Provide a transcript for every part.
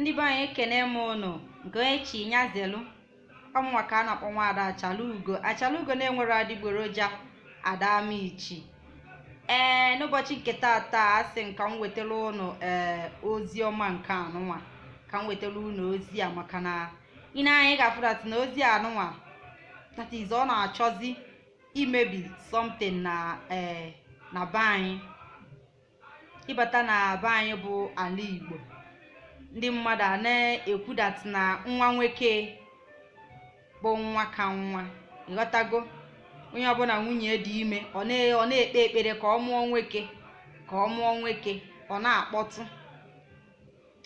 ndị be anyị ekene m ụnụ goechi nyazelu ọmụnwa ka a na-akpọ nwaada achalugo achalugo na-enwere adịgboroja adamichi ee n'ụbọchị nke tata a sị m ka m wetara ụnụ ee eh, ozi ọma nke anụnwa ka m wetara ụnụ ozi a maka na ị na-anya ga-afụdat na ozi anụnwa that ọ na-achọzi imebi something na ee eh, na be anyị ịbata na be anyị bụ ala igbo ndị mmadụ a na-ekwudat na nwa nwoke bụ nwa ka nwa ịghọtago onye ọbụla nwunye dị ime ọ na-ekpe ekpere ka ọ mụọ nwoke ka ọ mụọ nwoke ọ na-akpọtụ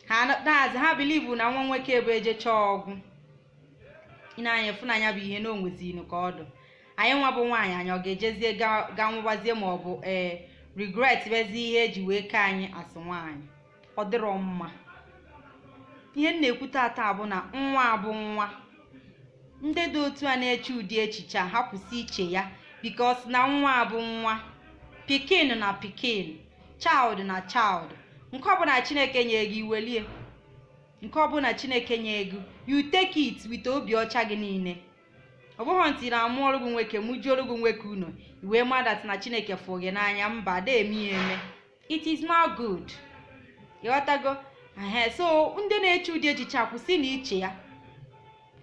ha daazị ha bilivu na nwa nwoke bụ eje chọọ ọgwụ ịna-anya fụ bụ ihe na onwezinu ka ọdụ anyị nwa bụ nwaanyị anyị ọ ga-ejezie ga nwụbazie ma ọ bụ ee eh, rigret bezi ihe eji wee kee anyị asị nwaanyị ọ dịrọ mma ihe m na-ekwu taata bụ na nwa abụ nwa ndị dị otu a na-eche ụdị echiche a ha kwụsị iche ya bikos na nwa abụ nwa pikin na pikin chaild na child nke ọbụla chineke nye gị iwelie nke ọbụla chineke nye gị you take obi ọcha gị niile ọ bụghị ntị na amụ ọrụ gị nwoke mụ ọrụ gị nwoke unu iwe madat na chineke fụ gị n'anya mba da eme ya eme it is not good ịghọtago ehe so ndị na-eche ụdị echiche akwụsị na iche ya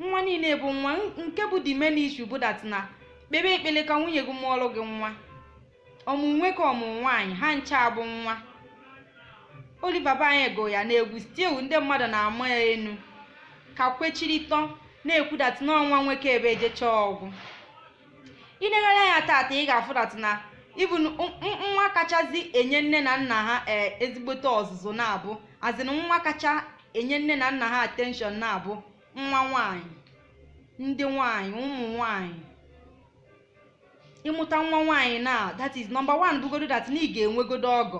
nwa niile bụ nwa nke bụ the main issue na kpebe ekpele ka nwunye gị mụọlụ gị nwa ọmụ nwe ka ọmụ nwaanyị ha ncha bụ nwa Oliver Banye go ya na n'egwu ewu ndị mmadụ na-ama ya enu ka kwechirịtọ na-ekwudatị n'ọnwa nwoke ebe ejechaa ọgwụ ilegharị ya tata ị ga-afụdatị na ịbụ nwa kachazi enye nne na nna ha eh, ezigbote ọzụzụ na-abụ azịn nwa kacha enye nne na nna ha atenshọn na-abụ nwa nwanyị ndị nwanyị ụmụ nwanyị ịmụta nwa nwanyị na that is number one bụgodo that na ị ga-enwegodo ọgọ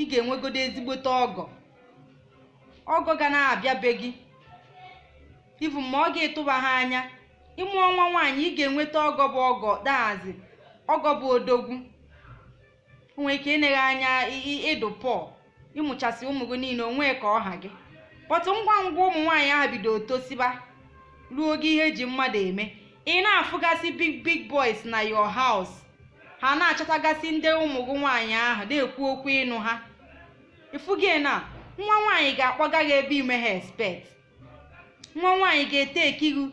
ị ga-enwegodo ezigbote ọgọ ọgọ ga na-abịa be gị ivu ma ọ ga-etụba ha anya ịmụọ nwa nwaanyị ị ga-enweta ọgọ bụ ọgọ daazị ọgọ bụ odogwu Onwe ike ineghe anya ịdụ pọl ịmụchasị ụmụ gị niile onwe ka ọha gị kpọtụ ngwa ngwa ụmụ nwaanyị ahụ bido tosiba ruo oge ihe eji mmadụ eme ị na-afụgasị big big boys na yo house ha na-achọtagasị ndị ụmụ gị nwaanyị ahụ na-ekwu okwu ịnụ ha ịfụgị na nwa nwaanyị ga-akpọga gị ebe ime ha expect nwa nwaanyị ga ete ekiru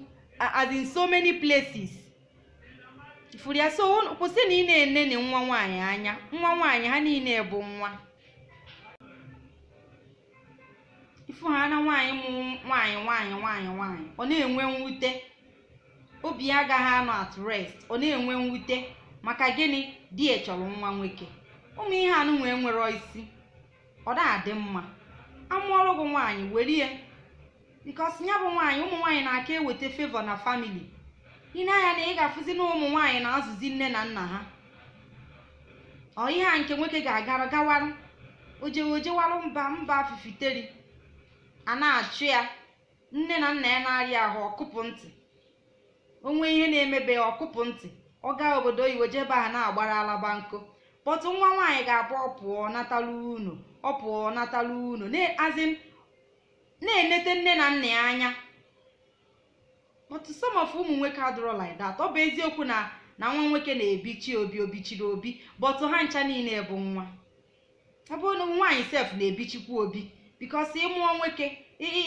as in so many places ifuru ya so kwụsị na ị na-enene nwa nwaanyị anya nwa nwaanyị ha niile bụ nwa fụ ha na nwaanyị mụrụ nwaanyị nwaanyị nwaanyị nwanyị ọ na-enwe mwute obi ya agaghị anọ at rest ọ na-enwe mwute maka gịnị di echọrọ chọrọ nwa nwoke ụmụ ihe anụ nwee nwere isi ọ na-adị mma amụọrụ gị nwaanyị were ya bikos ya bụ nwaanyị ụmụ nwaanyị na-aka eweta fevọ na famili ị na-anya na ị ga-afụzi na ụmụ nwaanyị na-azụzi nne na nna ha ọ ihe a nke nwoke ga-agara gawarụ ojewejewarụ mba mba fifiteri a na-achụ ya nne na nna ya na-arịa ahụ ọkụpụ ntị onwe ihe na-emebe ya ọkụpụ ntị ọ gaa obodo oyibo jebe ha na-agbara alaba nkụ kpọtụ nwa nwaanyị ga-abụ ọ pụọ unu ọ pụọ natala unu na-enete nne na nna ya anya but some of ụmụ nwoke adụrọ like ọ bụ eziokwu na na nwa nwoke na-ebichi obi obichiri obi bọtụ ha ncha niile bụ nwa ebe nwaanyị sef na-ebichikwa obi bikos ịmụọ nwoke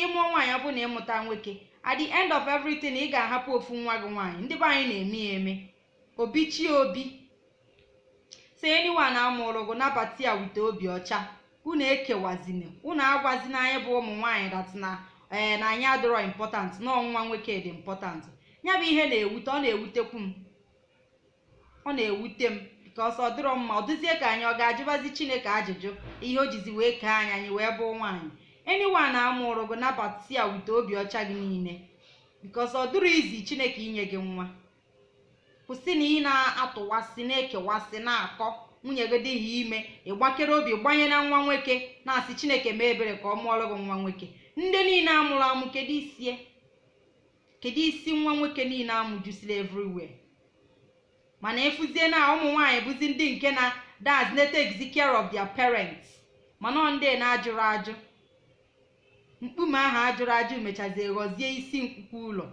ịmụọ nwaanyị ọ bụ na ịmụta nwoke at end of everything ị ga-ahapụ ofu nwa gị nwaanyị ndị be anyị na-eme ya eme obi chi obi si anyone amụrụ gụ nabata ya obi ọcha unu ekewazina unu agwazina anyị bụ ụmụ nwaanyị datina ee eh, na anyị adịrọ important na ọnwa nwoke dị important ya bụ ihe na-ewute ọ na-ewutekwu m ọ na-ewute m ka ọsọ dịrọ mma ọ dịzie ka anyị ọ ga-ajụbazi chineke ajụjụ ihe o jizi wee kee anyị anyị wee bụ nwaanyị eniwa na amụrụ gị nabata ya wute obi ọcha gị niile bikos ọ dịrọ izi chineke inye gị nwa kwụsị na ị na-atụwasị na-ekewasị na-akọ nwunye gị dịghị ime ịgbakere obi gbanye na nwa nwoke na-asị chineke mee ebere ka ọ mụọrọ gị nwa nwoke ndị niile amụrụ amụ kedu isi nwa nwoke niile amụjusila everywhere mana efuzie na ụmụ buzi bụzi ndị nke na dat na-take care of their parents mana ọ na-ajụrụ ajụ mkpume ahụ ajụrụ ajụ mechazie ghọzie isi nkwukwu ụlọ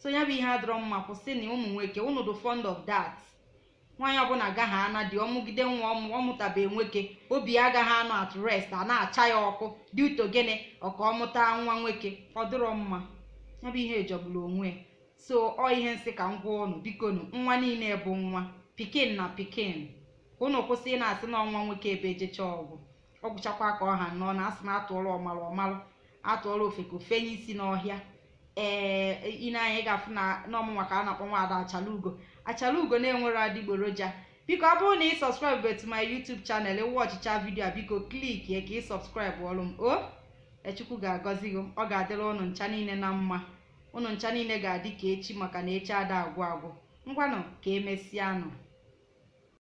so ya bụ ihe adọrọ mma kwụsị na ụmụ nwoke unu dị fond of dat nwaanyị ọbụla agaghị ana dị ọmụgide nwa ọmụtabeghị nwoke obi agaghị anọ at rest a na-acha ya ọkụ dị utogene ọka ọmụta nwa nwoke ọ dịrọ mma ya bụ ihe ejogburu onwe ya so ọ ihe nsị ka m gwa ụnụ biko nụ nwa niile bụ nwa pikin na pikin ụnụ kwụsị ị na-asị na ọnwa nwoke ebe ejecha ọgwụ ọ gwụchakwa ka ọha nọ na asị na atụọla ọmalụ ọmalụ atụọla ofeko fenye isi n'ọhịa ee ị ị ga-afụ na n'ọmụ maka a na-akpọ nwaada achalugo achalugo na-enwere adịgboroja biko ọ bụrụ na ị sọskraịbụ etu my YouTube chanel wọchịcha vidio a biko ya ka ị sọbskribụ ọrụ m o echukwu ga-agọzi gị ọ ga-adịrị ụnụ ncha niile na mma unu ncha niile ga-adị ka echi maka na echi ada agwụ agwụ ngwanụ ka emesịa anọ.